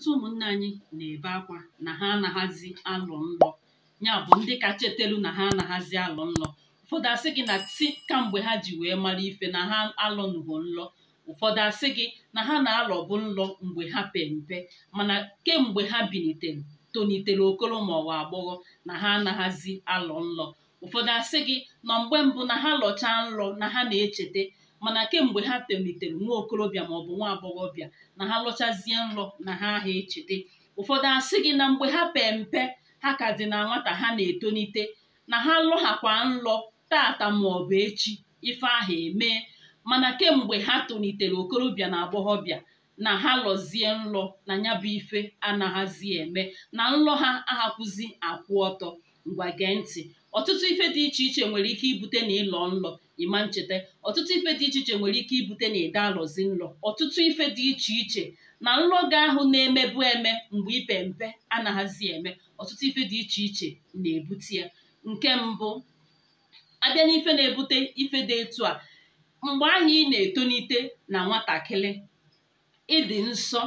ọtụtụ ụmụnne anyị na-ebe akwa na ha anaghazi alụ nlọ ya bụ ndị kacha etelu na ha anaghazi alụ nlọ ụfọdụ asị gị na ti kamgbe ha ji wee mara ife na ha alụnụgo nlọ ụfọdụ asị gị na ha na-alọbụ nlọ mgbe ha pempe, mpe mana kemgbe ha bilitere tonitere okoro ma ọ wa agbọghọ na ha anaghazi alọ nlọ ụfọdụ asị gị nọ mgbe mbụ na ha lọchaa nlọ na ha na-echeta mana kemgbe ha tolitere nwa okorobịa maọbụ nwa agbọghọbịa na ha lọchazie nrọ na ha aha echete ụfọdụ asị gị na mgbe ha pee mpe ha ka dị na nwata ha na-etonite na ha lọghakwa nrọ tata maọbụ echi ife ahụ emee mana kemgbe ha tolitere okorobịa na agbọghọbịa na ha lọzie nrọ na ya bụ ife anaghazi eme na nrọ ha ahakwụzi akwụ ọtọ ngwa gee ntị ọtụtụ ife dị iche iche nwere ike ibute na ịlọ nlọ ịma ncheta ọtụtụ ife dị iche iche nwere ike ibute na ịda alọzi nlọ ọtụtụ ife dị iche iche na nlọ ga ahụ na-emebu eme mgbe ipe mpe anaghazi eme ọtụtụ ife dị iche iche na-ebute ya nke mbụ abịa n'ife na-ebute ife dị etu a mgbe ahụ ị na-etonite na nwatakịrị ịdị nsọ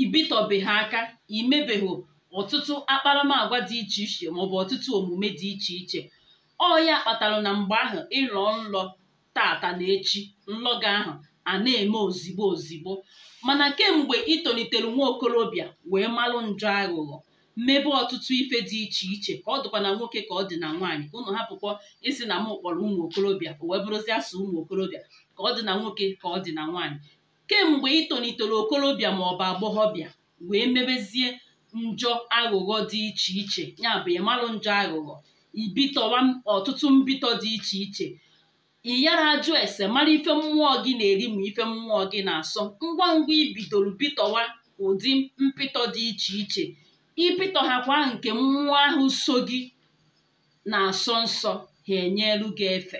ibitọbeghị aka imebeghị ọtụtụ akparamagwa dị iche iche maọbụ ọtụtụ omume dị iche iche ọ ya kpatara na mgbe ahụ ịlọ nlọ tata na echi nlọ ahụ a na-eme ozigbo ozigbo mana kemgbe ị nwa okorobịa wee malụ njọ aghụghọ mmebe ọtụtụ ife dị iche iche ka ọ dịkwa na nwoke ka ọ dị na nwaanyị ka ụnụ hapụkwa isi na m kpọrọ ụmụ okorobịa wee bụrụzi asụ ụmụ okorobịa ka ọ dị na nwoke ka ọ dị na nwaanyị kemgbe ị okorobịa maọbụ agbọghọbịa wee mebezie njọ aghụghọ dị iche iche ya bụ ịmalụ njọ aghụghọ ibitọwa ọtụtụ mbitọ dị iche iche iyara ajụ ese mara ife mmụọ gị na-eri ma ife mmụọ gị na-asọ ngwa ngwa ibidoro bitọwa ụdị mpịtọ dị iche iche kwa nke mmụọ ahụ so gị na-asọ nsọ ha enyelu gị efe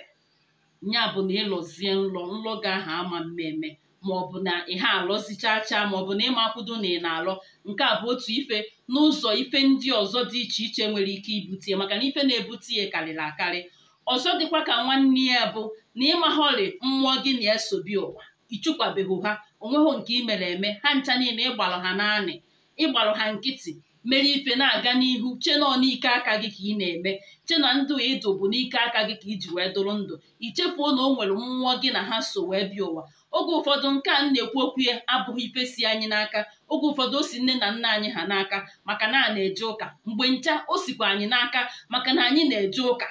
ya bụ na ịlọzie nlọ nlọ gị ahụ ama mmemme maọbụ na ịha alọzichacha maọbụ na ịmakwudo na ị na-alọ nke a bụ otu ife n'ụzọ ife ndị ọzọ dị iche iche nwere ike ibute maka na ife na-ebute ya karịrị akarị ọzọ dịkwa ka nwanne ya bụ na ịmaghọrị mmụọ gị na-esobi ụwa ịchụkwabeghị ha onweghị nke imere mere eme ha ncha niile ịgbalụ ha naanị ịgbalụ ha nkịtị mere ife na-aga n'ihu chenọ n'ike aka gị ka ị na-eme chena ndụ ịdụ bụ n'ike aka gị ka iji wee dụrụ ndụ ichefuo na o nwere mmụọ gị na ha so wee bịa ụwa oge ụfọdụ nke a na-ekwu okwu ya abụghị ife si anyị n'aka oge ụfọdụ o si nne na nna anyị ha n'aka maka na a na-eje ụka mgbe ncha o sikwa anyị n'aka maka na anyị na-eje ụka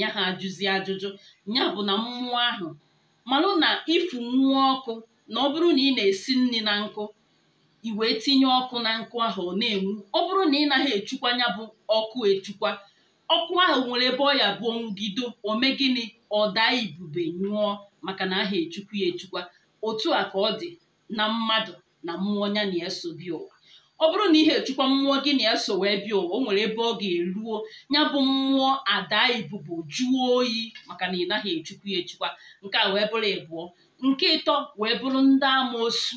ya ha ajụzi ajụjụ ya bụ na mmụọ ahụ malụ na ịfụ nwa ọkụ na ọ bụrụ na ị na-esi nri na nkụ ị wee tinye ọkụ na nkụ ahụ ọ na-enwu ọ bụrụ na ị naghị echukwa ya bụ ọkụ echukwa ọkụ ahụ nwere ebe ọ ya bụ onwugido o gịnị ọ daa ibube nyụọ maka na aha echukwu ya echukwa otu a ka ọ dị na mmadụ na mmụọ ya na eso bi ụwa ọ bụrụ na ihe echukwa mmụọ gị na-eso wee bịa ụwa o nwere ebe ọ ga-eruo ya bụ mmụọ ada ibubo jụọ oyi maka na ị naghị echukwu ya echukwa nke a wee bụrụ ịbụọ nke ịtọ wee bụrụ ndị amoosu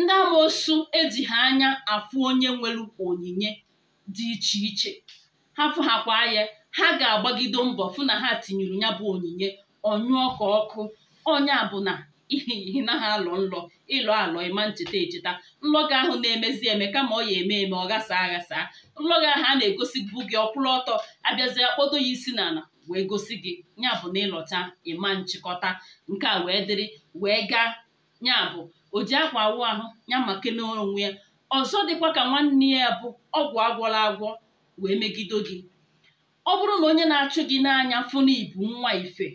ndị amoosu eji ha anya afụ onye nwere onyinye dị iche iche ha fụhakwa ya ha ga agbagido mbọ fụ na ha tinyere ya bụ onyinye ọnyụọ ka ọkụ onye abụna na na ha alọ nlọ ịlọ alọ ịma ncheta echeta Nlọga ahụ na-emezi eme kama ọ ya eme eme ọ gasa aghasa Nlọga ahụ a na-egosibụ gị ọkwụrụ ọtọ abịazie kpodo ya isi n'ala wee gosi gị ya bụ na ịlọta ịma nchịkọta nke a wee dịrị wee gaa ya bụ o ji akwa awụ ahụ ya maka onwe ya ọzọ dịkwa ka nwanne ya bụ ọgwụ agwọla agwọ wee megido gị ọ bụrụ na onye na-achụ gị n'anya fụna ibu nwa ife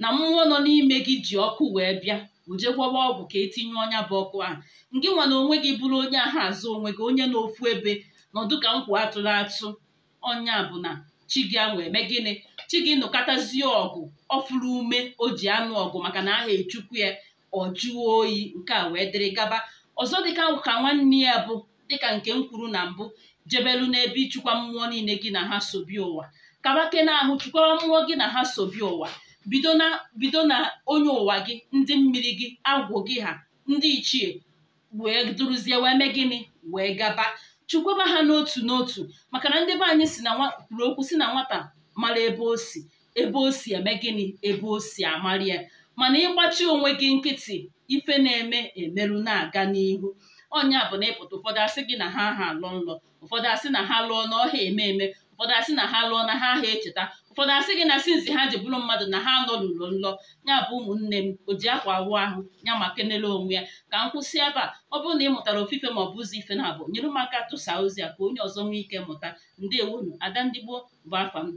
na mmụọ nọ n'ime gị ji ọkụ wee bịa ojegwọwa ọgwụ ka etinye ọnya bụ ọkụ ahụ nke nwa na onwe gị bụrụ onye ahụ azụ onwe gị onye n'ofu ebe nọdụ ka nkwa atụrụ atụ ọnya bụ na chi gị anwa eme gịnị chi gị nụkọtazie ọgụ ọfụrụ ume o ji anụ ọgụ maka na aha echukwu ya ọ jụọ oyi nke a wee dịrị gaba ọzọ dịka ka nwanne ya bụ dịka nke m kwuru na mbụ jebelu n'ebe ịchụkwa mmụọ niile gị na ha ụwa kaba ụwa kabake ahụ chịkwara mmụọ gị na ha sobi ụwa bido na onye ụwa gị ndị mmiri gị agwụ gị ha ndị ichie wee duruzie wee mee gịnị wee gaba chụkwaba ha n'otu n'otu maka na ndị be anyị si na kwuru okwu si na nwata mara ebe o si ebe o si eme gịnị ebe o si amarị mana ịgbachi onwe gị nkịtị ife na-eme emerụ na-aga n'ihu ọnya bụ na ịpụta ụfọdụ asị gị na ha ha alọ nlọ ụfọdụ asị na ha lụọ n'ọha eme eme ụfọdụ asị na ha lụọ na ha aha echeta ụfọdụ asị gị na sinzi ha ji bụrụ mmadụ na ha nọ n'ụlọ nlọ ya bụ ụmụnne m o ji akwa awụ ahụ ya ma kenele onwe ya ka m kwụsị ebe a ọ bụrụ na ị mụtara ofufe ma ọ bụ ụzọ ife na-abụ nyere m aka tụsa ozi a ka onye ọzọ nwee ike mụta ndewunu ada adandigbo gboo bụ afa m